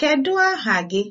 Kedu aha gị?